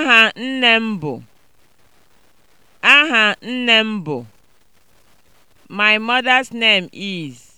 Aha nne m bụ Aha nne m bụ My mother's name is.